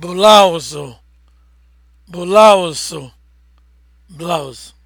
blouse blouse blouse